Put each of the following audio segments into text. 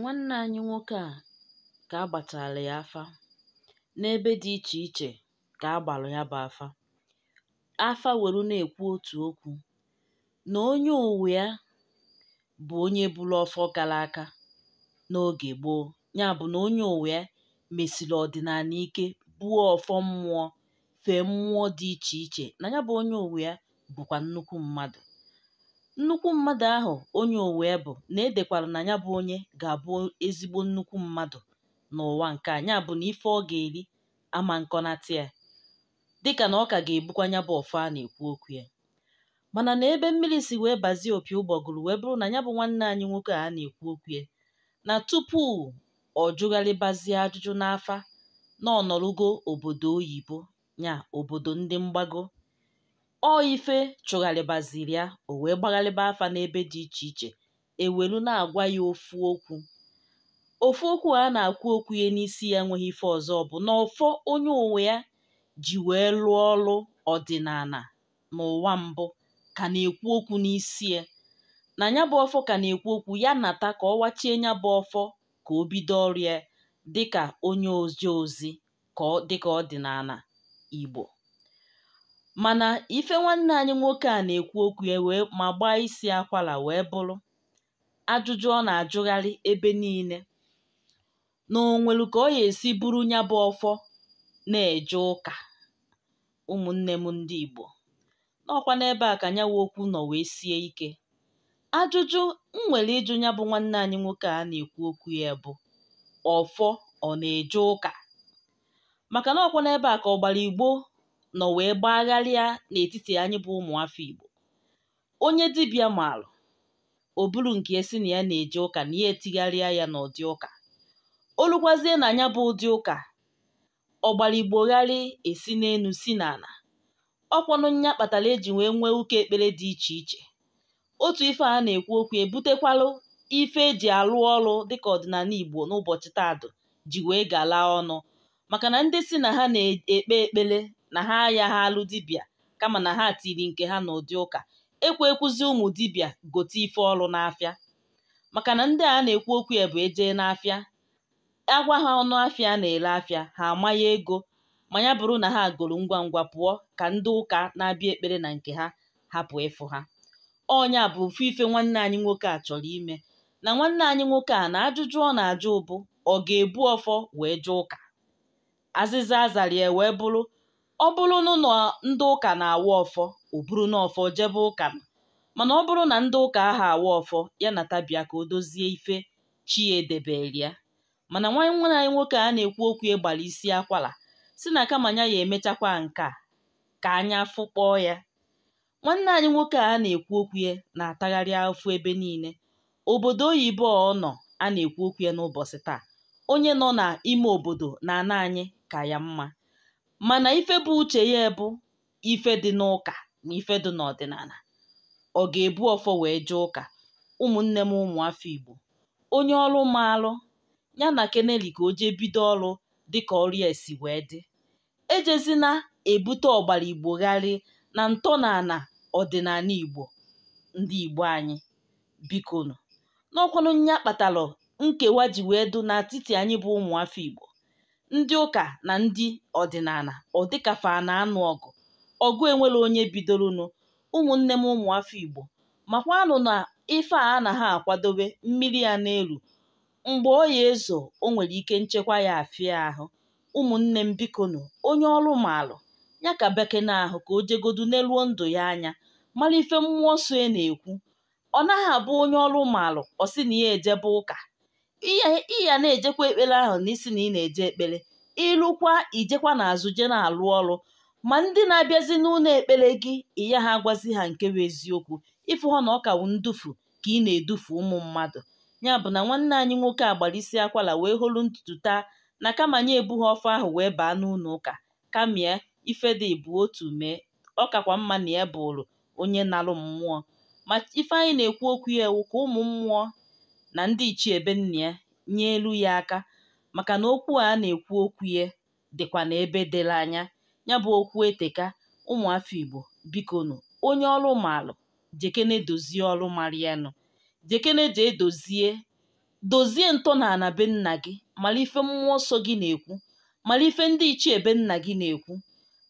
Nwanne anyị nwoke a ka a ya afa n'ebe dị iche iche ka a ya bụ afa, afa were na-ekwu otu okwu na onye uwe ya bụ onye bụrụ ọfọ gara aka n'oge gboo ya bụ na onye uwe ya mesiri ọdịnala ike buo ọfọ mmụọ fee mmụọ dị iche iche na ya bụ onye uwe ya bụkwa nnukwu mmadụ Nnukwu mmadụ ahụ onye Owerri bụ na edekwara na ya bụ onye ga-abụ ezigbo nnukwu mmadụ n'ụwa nke a ya bụ na ife ọ ga-eri ama nkọnata ya dịka na ọ ka ga-ebukwa ya bụ ọfọ a na-ekwu okwu ya mana na ebe mmiri si wee bazie opi ụgbọgụrụ wee bụrụ na ya bụ nwanne anyị nwoke a na-ekwu okwu ya na tupu ọ jụgharịbazie ajụjụ n'afa na ọ nọrụgo obodo oyibo nya obodo ndị mgbago ọ ife chụgharịbaziri ya o wee gbagharịba afa n'ebe dị iche iche ewelu na-agwa ya ofu okwu ofu okwu a na akwu okwu ya n'isi ya nweghị ife ọzọ bụ na ọfọ onye onwe ya ji wee lụọ ọrụ ọdịnala n'ụwa mbụ ka na-ekwu okwu n'isi ya na nya bụ ọfọ ka na-ekwu okwu ya nata ka ọ wachie ya bụ ọfọ ka o bido ọrụ ya dịka onye ozi ozi ka dịka ọdịnala Igbo Mana ife nwanne anyị nwoke a na-ekwu okwu ya ma gbaa isi akwara wee bụrụ, ajụjụ ọ na-ajụgharị ebe niile, na o nwelu ka ọ ya esi bụrụ nya bụ ọfọ na-eje ụka. Ụmụnne m ndị Igbo, n'ọkwa n'ebe a ka nyawa okwu nọ wee sie ike. Ajụjụ m nwere ịjụ nya bụ nwanne anyị nwoke a na-ekwu okwu ya bụ ọfọ ọ na-eje ụka? Maka na ọkwa n'ebe a ka gbara Igbo nọ wee gbagharịa n'etiti anyị bụ ụmụafọ Igbo onye dibịa maalụ o buru nke esi na ya na-eje ụka na ya etigharịa ya n'ụdị ụka olukwazie na anya bụ ụdị ụka ọgbaligbogharị esi n'elu si n'ala ọkwanụ nya kpatara eji wee nwee ụka ekpere dị iche iche otu ife a na-ekwu okwu ebutekwalụ ife eji alụ ọrụ dịka ọdịnala Igbo n'ụbọchị taadụ ji wee galaa ọnụ maka na ndị si na ha na-ekpe ekpere na ha ayaghị alụ dibịa kama na ha tiri nke ha n'ụdị ụka ekwe ekwuzi ụmụ dibịa gote ife ọrụ n'afịa maka na ndị a na-ekwu okwu ya bụ ejee n'afịa agwa ha ọnụ afịa na ere afịa ha amanye ego ma ya bụrụ na ha goro ngwa ngwa pụọ ka ndị ụka na-abịa ekpere na nke ha hapụ ịfụ ha ọnya bụ ofu ife nwanne anyị nwoke a chọrọ ime na nwanne anyị nwoke a na ajụjụ ọ na-ajụ ụbụ ọ ga-ebu ọfọ wee jụ ụka azịza azara ya wee bụrụ ọ bụrụ na ndị ụka na-awa ọfọ o buru n'ọfọ jebe ụka mana ọ bụrụ na ndị ụka ahụ awa ọfọ ya na tabia ka o dozie ife chi ya e edebere ya mana nwanne anyị nwoke a na-ekwu okwu ịgbara isi akwara si na kama ya ya emechakwa nke ka anya fụkpọọ ya nwanne anyị nwoke a na-ekwu okwu ya na-atagharị afụ ebe niile obodo oyibo ọ nọ a na-ekwu okwu ya n'ụbọchị taa onye nọ n'ime obodo na ana anyị ka ya mma mana ife bụ uche ya bụ ife dị n'ụka na ife dị n'ọdịnala ọ ga-ebu ọfọ wee jee ụka ụmụnne m ụmụafọ Igbo onye ọrụ maalụ ya na keneli ka o jee bido ọrụ dịka ọrụ ya si wee dị ejezina ebute ọgbara Igbo gharị na ntọnala ọdịnala Igbo ndị Igbo anyị bikonu n'ọkwanụ nya kpatara nkewa ji wee dụ n'etiti anyị bụ ụmụafọ Igbo ndị ụka na ndị ọdịnala ọ dịkafa na-anụ ọgụ ọgụ enwere onye bidoronu ụmụnne m ụmụafọ Igbo makwanụ na ife a na ha akwadobe mmiri ya n'elu mgbe o ya ezo o nwere ike nchekwa ya afịa ahụ ụmụnne m bikonu onye ọrụ maalụ ya ka bekene ahụ ka o jegodu n'eluo ndụ ya anya mara ife mmụọ nsọ e na-ekwu ọ naghị abụ onye ọrụ maalụ ọ sị na ya ejebe ụka ịya ya na-ejekwa ekpere ahụ n'isi na ị na-eje ekpere ịlụkwa ijekwa n'azụ je na-alụ ọrụ ma ndị na-abịazi n'ụlọ ekpere gị ịya ha agwazi ha nke bụ eziokwu ịfụ ha na ọ kawu ndufu ka ị na-edufu ụmụ mmadụ ya bụ na nwanne anyị nwoke a gbara isi akwara wee holu ntutu taa na kama nye ebu ọfọ ahụ wee baa n'ụlọ ụka kamie ife dị bụ otu mee ọkakwa mma na ya bụrụ onye na-alụ mmụọ ma ife anyị na-ekwu okwu ya ewu ka ụmụ mmụọ na ndị ichie be nna ya elu ya aka maka na okwu a na-ekwu okwu ye dịkwa n'ebe dịla anya ya bụ okwu eteka ụmụafọ Igbo bikonu onye ọrụ maalụ jekene dozie ọrụ marianụ jekene jee dozie dozie ntọnala be nna gị mara ife mmụọ nsọ gị na-ekwu mara ife ndị ichie be nna gị na-ekwu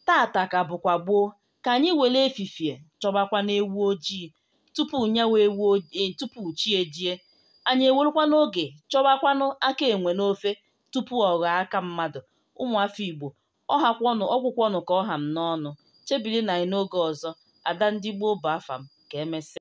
tata ka bụkwa gboo ka anyị were efifie chọbakwa na ewu ojii tupu nyawa ewu e, tupu chi ejie Anyị ewerukwanụ oge chọwakwanụ aka enwe n'ofe tupu ọ ghọọ aka mmadụ, ụmụafọ Igbo, ọhakwọnụ ọgwụkwọnụ ka ọ ham n'ọnụ, chebilụ na anyị n'oge ọzọ, Ada ndị gboo bụ afa m, ka emesịa.